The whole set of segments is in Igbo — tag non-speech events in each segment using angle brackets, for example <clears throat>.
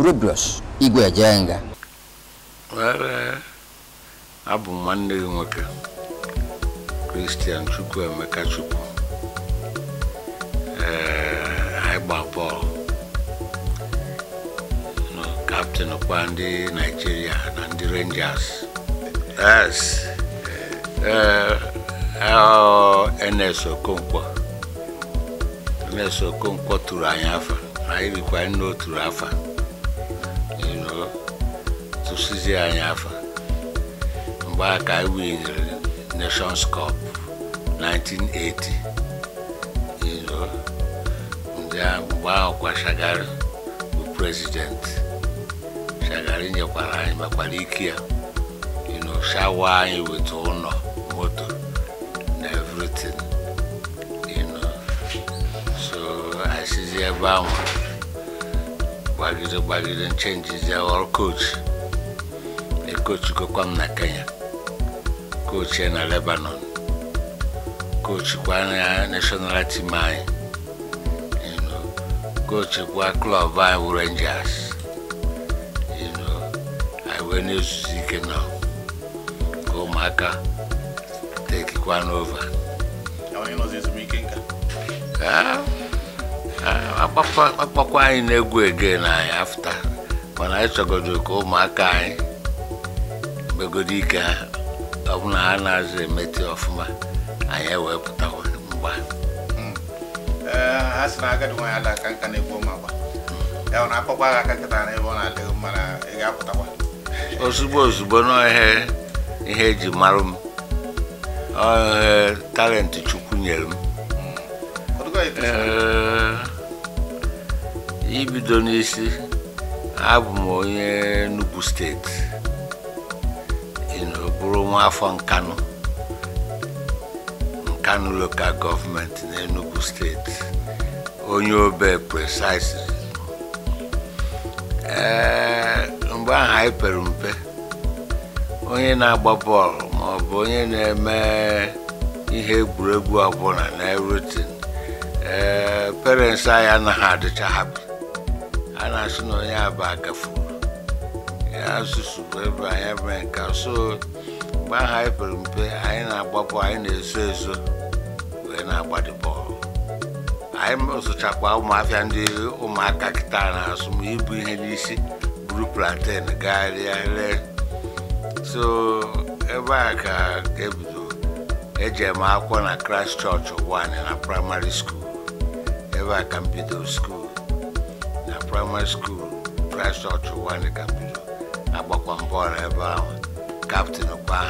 buru igwe jee nga abụ m nwanne gị nwoke Christian Chukwuemeka Chukwu anyị gba bọọlụ kaptịn kwa ndị Naịjirịa na ndị Rangers yes e, NS Okonkwo NS Okonkwo tụrụ anyị afa anyị rikwa nne o tụrụ afa tụsizi anyị afa mgbe aka anyị winere Nations Cup 1980 mgbe ahụ kwa Shagari bụ prezident Shagari nyekwara anyị makwara ike ya shawa anyị weta ụlọ moto na everything so asizi ebe ahụ gbagide gbagide nchenjizi ọrụ coach kochi gokwam na Kenya kochi na Lebanon kochi kwa na national team anyị kochi kwa klọb anyị bụ Rangers anyị wee na-ezuzi ike nọ ka ụmụaka tekikwa n'ova akpakwa anyị na-egwu ege na anyị afta mana anyị chọgodo ka ụmụaka anyị megodi ike bụ na ha na-azụ emete ọfụma anyị ewepụtakwa mgba hmm. eh, ha si na agadi nwaanyị ala aka nka na-egbu ma gba ya na akpọkwa agha aka nkịta na ebe ọ na-adịghị mma na ị ga-apụtakwa ozugbo ozugbo n'ọhịa ihe eji e marụ m ọhịa talenti chukwu nyere m hmm. eh, ibido n'isi abụ m onye Enugu steeti bụrụ nwa afọ nkanụ nkanụ lokal na enugu steeti onye obe precisely ee mgbe ahụ anyị pere mpe onye na-agba bọọlụ ma ọ bụ onye na-eme ihe egwuregwu ọbụla na everything ee parents anyị anaghị adịcha hapi a na-asị na onye aba agafuru asụsụ bụ ebe anyị ebe nka so mgbe ahụ anyị pere mpe anyị na-agbapụ anyị na-eso eso wee na-agbadị bọọlụ anyị sụchakwa ụmụafịa ndị ụmụaka kịta na-asụ m ibu ihe n'isi buru plantain gagharịa ree so ebe a ka ebido eje eme akwụkwọ na Christ chọọchị one na praịmarị skuul ebe a ka m bido skuul na praịmarị skuul Christ chọọchị one ka m bido agbakwa mbọọlụ ebe ahụ captain kwa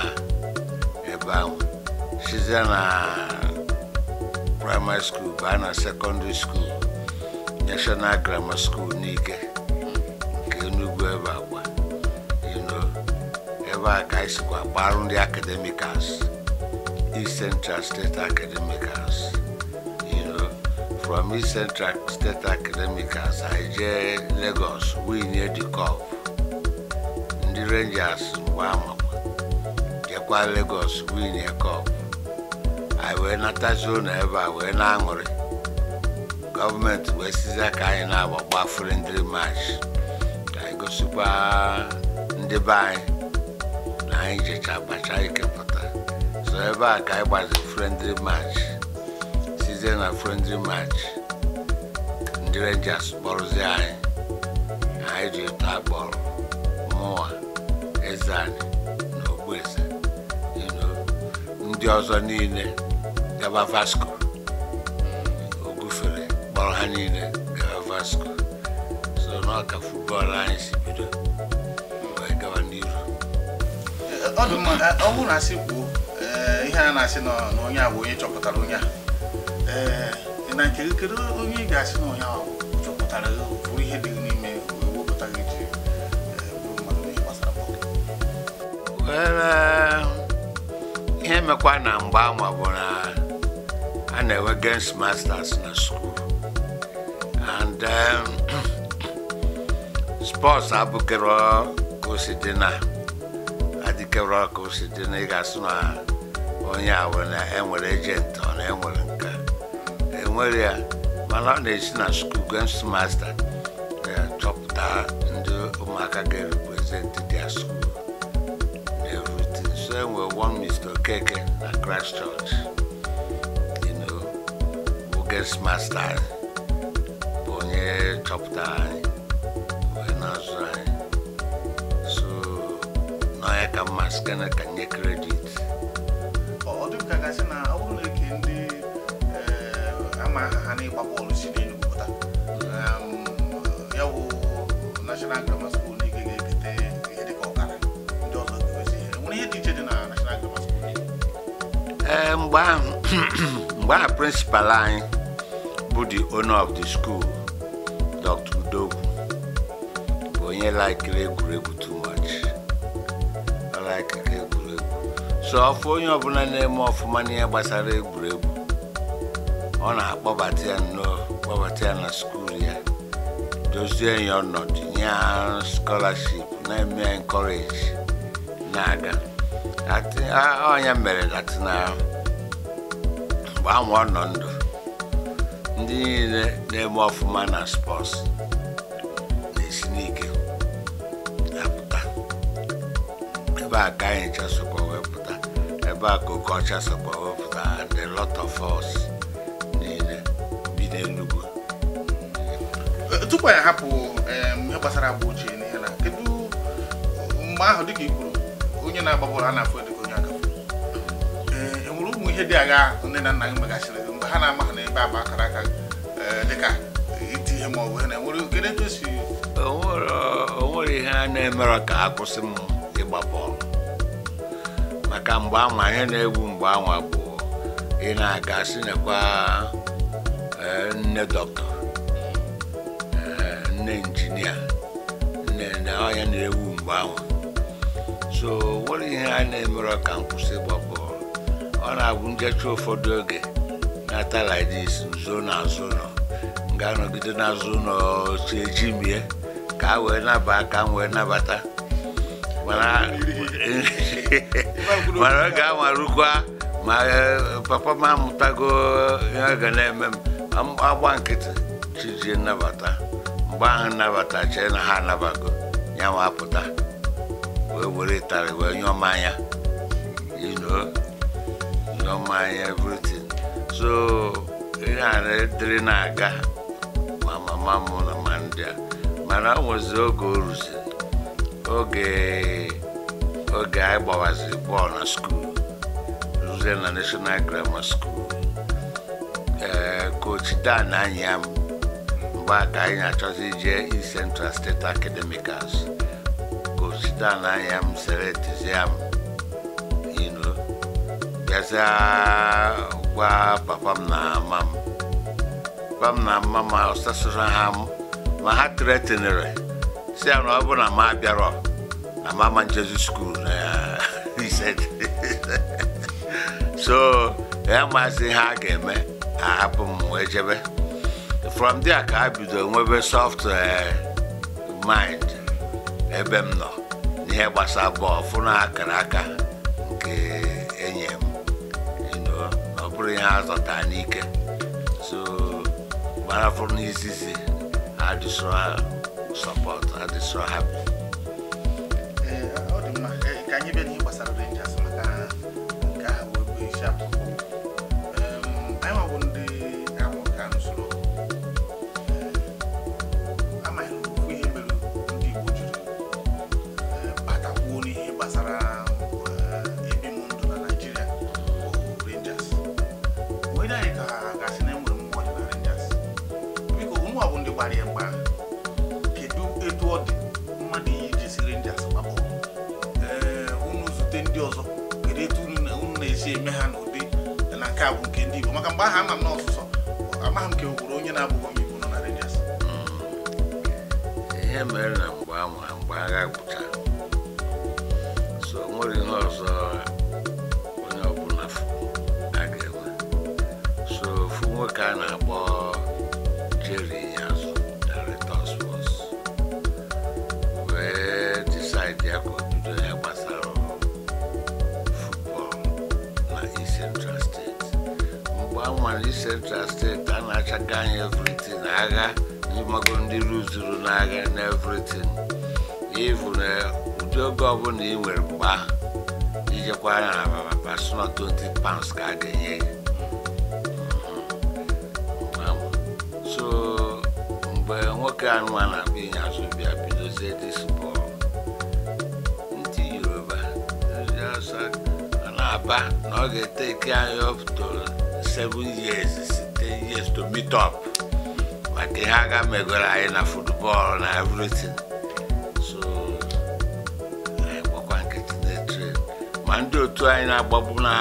eba size na primary school baa na secondary school national grammar school n'ike nke enugwu ebe agba ino ebe a ka anyị sikwa gbarụ ndị academicals east central state academicals ino from east central state academicals anyị jee lagos winye the cup ndị rangers mgbe amakwa na legos Lagos winye kọp anyị wee natazi na ebe a wee na-aṅụrị gọọmenti wee sizi aka anyị na-agbagba frindri mach ka anyị gosikwa ndị be anyị na anyị jecha abacha ikepụta so ebe a ka anyị gbazi frindri mach sizie na frindri mach ndị renjas kpọrụzi anyị anyị ji ụtọ akpọrọ mụwa eze na ogbueze ndị ọzọ niile gaba Vasco o gufere kpọrọ ha niile gaba Vasco so n'ọka futbọọlụ anyị si bido wee gawa n'iru ọ bụrụ na asị kwuo eh, ihe a na-asị na onye a bụ onye chọpụtara onye a eh, na nke kedu onye ị ga-asị na onye ahụ chọpụtara bụrụ ihe dị n'ime wepụtara iji eh, bụrụ mmadụ onye gbasara bọọlụ uh, ihe mekwa na mgbe ama bụ na a na-enwe games masters na skuul and um, <coughs> sports abụkero ka dị na adịkero ka na ị na onye a na enwere ejent ọ enwere nka enwere ya mana ọ na-esi na skuul games master eh, chọpụta ndị ụmụaka ga-erepresent a school one Mr. Okeke at christchurch you know, bụ guest master bụ onye chọpụtara anyị wee na-azụ anyị so n'ọya ka mma sikana ka nye kredit ama ha na-ịgba bọọlụ si n'elu pụta ya bụ national grammar school ee eh, mgbe mgbe ahụ <clears throat> anyị bụ the owner of the school Dr. Udogwu bụ onye laikiri egwuregwu too much so ọfụ onye ọbụla na-eme ọfụma n'ihe gbasara egwuregwu ọ na-akpọbata ya kpọbata ya na skuul ya dozie ya ọnọdụ nye ya scholarship na-eme encourage na-aga Ah, onye oh, mere latina mgbe ahụ ọ nọ ndụ ndị niile na-eme ọfụma na spọs na-esi n'ike apụta ebe a ka anyị chasokwa wepụta ebe a ka oke ọcha sokwa wepụta and a lot of us niile bi n'Enugu tupu anyị hapụ ihe gbasara agba ochie na ihe na kedu mgbe ahụ dịka i kwuru onye na-agba bọọlụ a na-afụ edego onye aka ee e nwere ụmụ ihe dị agha nne na nna gị megasịrị mgbe ha na-ama ha n'ebe agba akara aka dịka iti ihe ma ọ bụ ihe na-enwere kedu etu esi nwere ihe a na-emere ka a kwụsị m ịgba bọọlụ maka mgbe anwa ihe na-egwu mgbe anwa bụ ị na-aga si nekwa nne dọkịta nne injinia nne na onye na-ewu mgbe anwa so nwere ihe a na-emere ka m kwụsị ịgba ọ na-abụ njecha ụfọdụ oge n'ata lidis nso n'azụ ụlọ m ga-anọgide n'azụ ụlọ si eji mie ka a wee naba ka wee nabata mana ọ <laughs> ga-amarụkwa ma e, papa m amụtago ihe ga na-eme m agba nkịtị chijie nnabata mgbe ahụ nnabata chee na ha anabago ya ma wee were ịtarị wee nyụọ mmanya you know nyụọ mmanya everything so ihe a dịrị na-aga ma mama m na ma ndị a mana o nwezi oge o ruziri oge oge anyị gbawaziri bọọlụ na skuul ruzie na national grammar school ee uh, kochi dan anyị ya mgbe aka anyị na-achọzi ije East Central State Academicals osite na ahịa m sere tizia m ilu bịazịa gwa papa m na mama m papa m na mama m ọsasoro ha ma ha tretinere si ya na ọ bụ na m abịarọ na mama njezu skuul so ya maazị ha ga-eme ahapụ m wee jebe from there ka ha bido nwebe soft eh, mind ebe m nọ ihe gbasa bọọlụ fụna akara aka nke enye m ọ bụrụ ihe azọta n'ike so gbara fụrụ n'izizi adịsọ sọpọt adịsọ hapụ ọ ka anyị bịa n'ihe gbasara Rangers maka nke ahụ bụ isiakwụkwọ gbasara ebi eh, m ndụ na naijiria oh, rangers wee anyị ka ha gasị na enwere mmụọ dị na rangers biko ụmụ ọbụ ndị gbara ya mgba kedu etu ọ dị mmadụ iyi rangers gbapụ eh, unu zute ndị ọzọ kedu etu unu na-esi eme ha n'ụdị na nke a bụ nke ndị igbo maka mgbe aha ama m n'ọsụsọ amaghị m ka e onye na-abụghị onye igbo nọ na rangers mm. ihe mere na mgbe agha gwụchara onwere ihe ọzọ onye ọbụla a ga-enwe so ofu nwoke a na-akpọ Jerry Nyazu director sports wee decide ya ka obido ya gbasara football na isentral steeti mgbe a nwere isentral steeti a na-achaga anyị everything agha ndị mago ndị ruzuru n'agha na everything ivu uh, na wepụta oge ọbụla ị nwere mgbe ahụ ya na ababa pasụnọ 20 pounds ka a ga-enye ya mm-hmm. so mgbe nwoke anụwa na-abụ inye azụ bịa bidozie dis bọl ndị yoruba ndị ọsọ na-aba na ọ ga-eteke anyị up to 7 years site years to meet up maka ihe aga megoro anyị na football na everything ma ndị otu anyị na-agbagbu na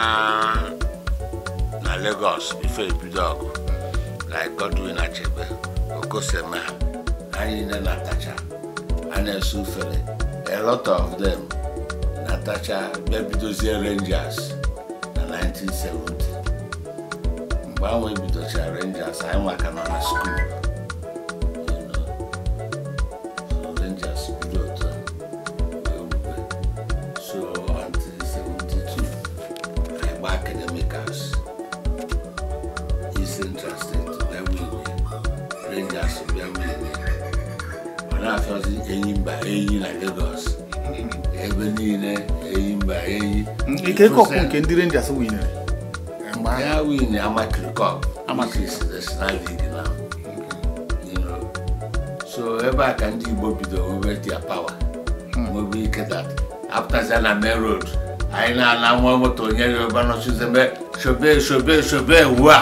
Lagos ife ebido ọgụ like Godwin Achebe Okosema anyị niile na-atacha a na-ese ufere a lot of them na-atacha bịa bidozie Rangers na 1970 mgbe ahụ ebidocha Rangers anyị maka nọ na skuul eyi mba eyi na Lagos ebe niile eyi mba eyi ike kọpụ nke ndị Rangers winyere ya win Amatri Cup Amatri is national league now you know so ebe a ka ndị Igbo bido nwebe their power nwebe hmm. ike that after na main road anyị na-ala nwa moto onye yoruba nọchizebe shobe shobe shobe uwe a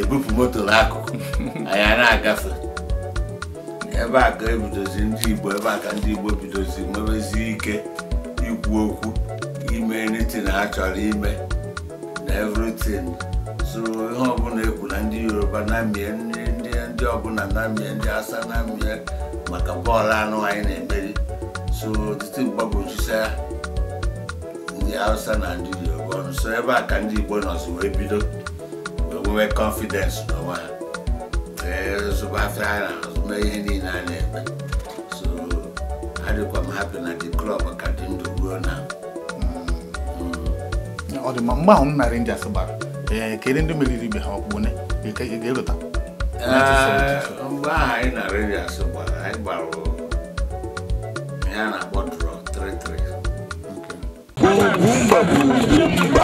ebupụ moto n'akụkụ anyị a na-agafe ebe a ka ebidozi ndị Igbo ebe a ka ndị Igbo bidozi nwebezi ike ikwu okwu ime anything ha chọrọ ime na everything so ihe ọbụla ekwu na ndị Yoruba na-amịa ndị ọbụla na-amịa ndị asa na-amịa maka bọọlụ anụ anyị na-emeri so titi mgbagwojusa ndị Hausa na ndị Yoruba so ebe a ka ndị Igbo nọzi wee bido wee nwee confidence n'onwe ha after Ireland, maybe in Ireland. So I do come happy at the club, I can't to grow now. ọ dị mma mgbe ahụ m narị ndị asị gbara kedu ha ọkpụkpụ ne e, e, ga-elota mgbe eh, ahụ anyị na